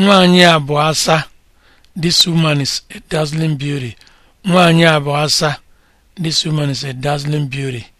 Nwaanyị a bụ asa. This woman is a dazzling beauty. Nwaanyị a bụ asa. This woman is a dazzling beauty.